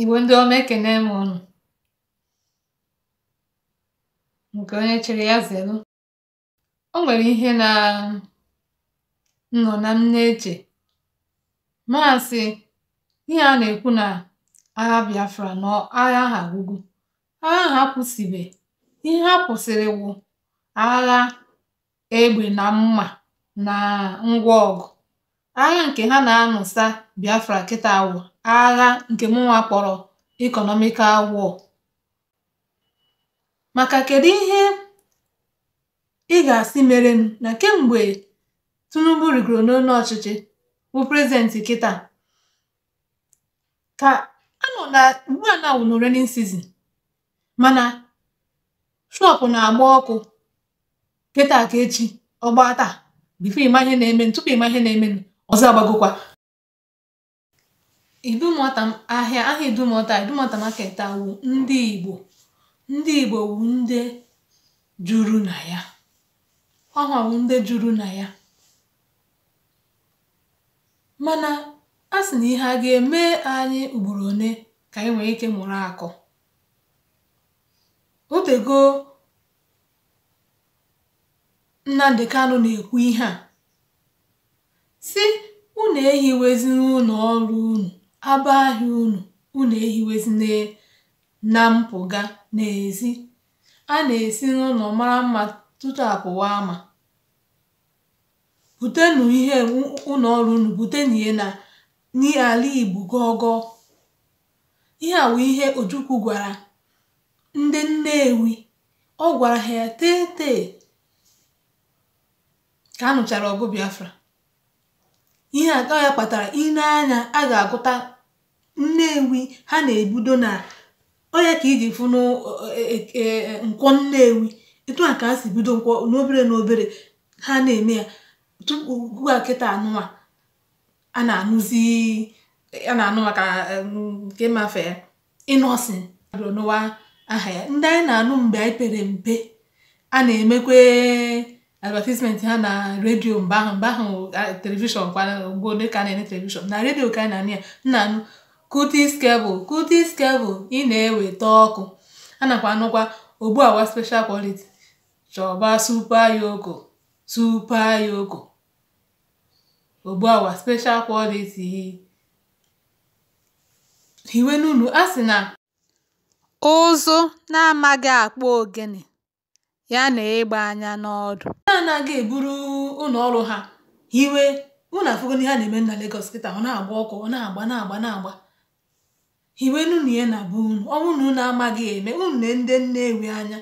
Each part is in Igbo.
Igbo ndị ọma ekene m nke onye chere ya zelu o nwere ihe na nọ na m na-eche maasị ihe a na-ekwu na agha Biafra na agha ha agwụgwụ agha ha kwụsịbe ihe ha kwụsịrị wụ agha egbe na mma na ngwa ọgụ agha nke ha na-anụsa Biafra kịta agwa. agha nke mụnwa kpọrọ economical wọ maka kedu ihe ị ga-asị mere na kemgbe Tinubu rigoro n'onu ọchịchị bụ prezidenti kịta ka anọ na ugbu a na awụ n'renin mana shọpụ na-agba ọkụ kịta ka echi ọgba taa bifo ịma ihe na-eme tupu ịma ihe na-eme ọzọ agbagokwa idumota ahịa aha idumota idumota market a wụ ndị igbo ndị igbo wụ ndị juru na ya ọ họwụ ndị juru na ya mana a sị na ihe a ga-eme anyị ugboro one ka anyị nwee ike mụrụ akụ. otego Nnamdị Kanụ na-ekwu ihe a si unu ehiweziri n'ụlọ ọrụ unu abụ ahịa unu, unu ehiwezina na mpụga n'ezi. A na-esi n'ụlọ mara mma tutu a ama. Butenụ ihe u ọrụ unu na ya na n'ala Igbo gọọgọọ. Ihe a wụ ihe Ojukwu gwara ndị Nnewi. Ọ gwara ha ya tee tee ka anụchara ọgụ Biafra. ihe a ka ya kpatara ị na anya a ga-agụta nnewi ha na ebudo na onye ka iji fụ e, e, e, nkwọ nnewi etu a ka ha si bido nkwọ n'obere n'obere ha na-eme ya tupu ugbu a kịta a na-anụzi a na-anụ maka nke ya ịnọsin aha ya ndị anyị na-anụ mgbe anyị pere mpe a na-emekwe advertisement ha na redio mgbe ahụ mgbe ahụ telivishọn kwana mgbe a na-ene telivishọn na redio ka na-anụ ya nna anụ kutis kebụl kutis kebụl ị na-eweta ọkụ a nakwa anụkwa ogbu awa special quality chọba super yoko super yoko ogbu awa special quality hiwe n'unu a sị na ụzụ na-amaghị akpọ ogene ya na ịgba anya n'ọdụ ha anaghị eburu ụlọ ọrụ ha hiwe ụnụ na afụgo a na-eme na Lagos kịta ọ na-agba ọkụ ọ na-agba na-agba na-agba hiwe nụnụ ihe na bụ unu ọnwụ na unu amaghị eme unu na ndị ewe anya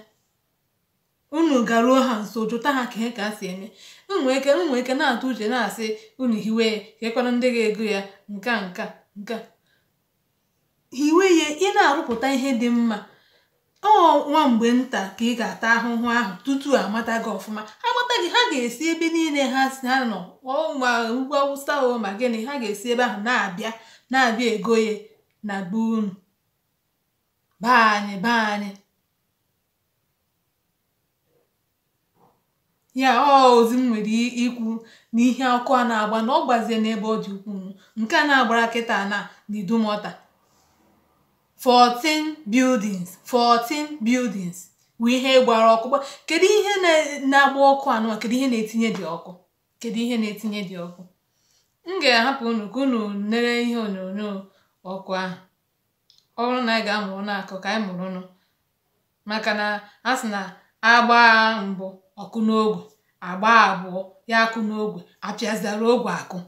unu garuo ha nso jụta ha ka ka si eme nwee ike ike na-atụ uche na-asị unu hiwe ya ndị ga-ego ya nka nka nka hiwe ya ị na-arụpụta ihe dị mma ọ nwa mgbe nta ka ị ga-ata ahụhụ ahụ tutu amata gị ọfụma amata gị ha ga-esi ebe niile ha si ha nọ ma ugwu awụsa o ma gịnị ha ga-esi ebe ahụ na-abịa na-abịa egoye na be unu be anyị be anyị ya ozi m nwere ikwu na ihe ọkụ a na-agba na ọ gbazie n'ebe ọ dị ukwuu nke a na-agbara kịta na na idumọta 14 buildings 14 buildings bụ ihe gbara ọkụ kedu ihe na-agba ọkụ anụwa kedu ihe na-etinye dị ọkụ kedu ihe na-etinye dị ọkụ m ga-ahapụ unu ka unu lere ihe onyonyo ọkụ ahụ ọ bụrụ na anyị ga-amụrụ n'akụ ka anyị mụrụ nụ maka na a sị na agba mbụ ọkụ n'ogwe agba abụọ ya akụ n'ogwe apịazara ogwe akụ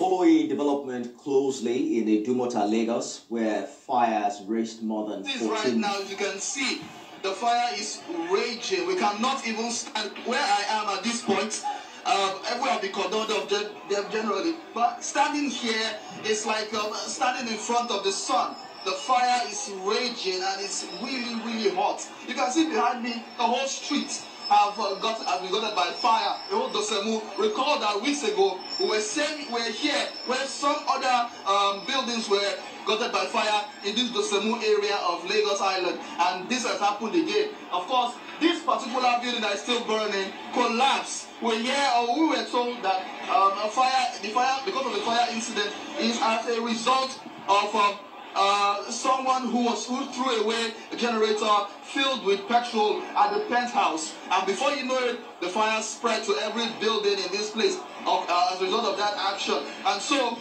follow a development closely in the Dumota, Lagos, where fires raged more than 14. This right now, you can see the fire is raging. We cannot even stand where I am at this point. Um, everywhere I've been condoned of them generally, but standing here is like um, standing in front of the sun. The fire is raging and it's really, really hot. You can see behind me the whole street have uh, got have been gutted by fire. Dosemu, recall that weeks ago we were saying we were here when some other um, buildings were gutted by fire in this Dosemu area of Lagos Island, and this has happened again. Of course, this particular building that is still burning collapsed. We hear or we were told that um, a fire, the fire because of the fire incident is as a result of. Um, Uh, someone who was who threw away a generator filled with petrol at the penthouse, and before you know it, the fire spread to every building in this place of, uh, as a result of that action. And so,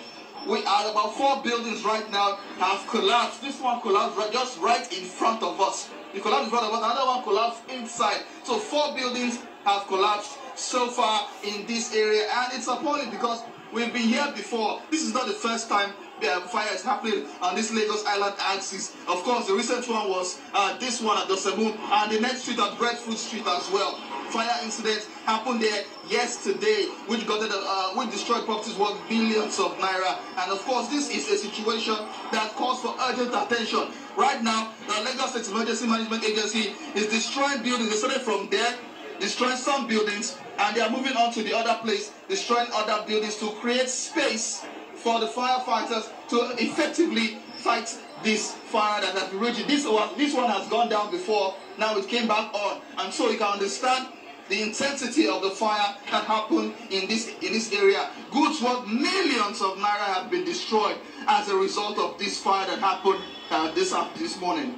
we are about four buildings right now have collapsed. This one collapsed right, just right in front of us. It collapsed in front of us. Another one collapsed inside. So four buildings have collapsed so far in this area, and it's appalling because we've been here before. This is not the first time uh, fire is happening on this Lagos Island axis. Of course, the recent one was uh, this one at the and the next street at Breadfruit Street as well. Fire incident happened there yesterday, which got uh, which destroyed properties worth billions of naira. And of course, this is a situation that calls for urgent attention. Right now, the Lagos State Emergency Management Agency is destroying buildings. They started from there destroying some buildings and they are moving on to the other place, destroying other buildings to create space for the firefighters to effectively fight this fire that has been raging. This one, this one has gone down before, now it came back on. And so you can understand the intensity of the fire that happened in this in this area. Goods worth millions of naira have been destroyed as a result of this fire that happened uh, this, this morning.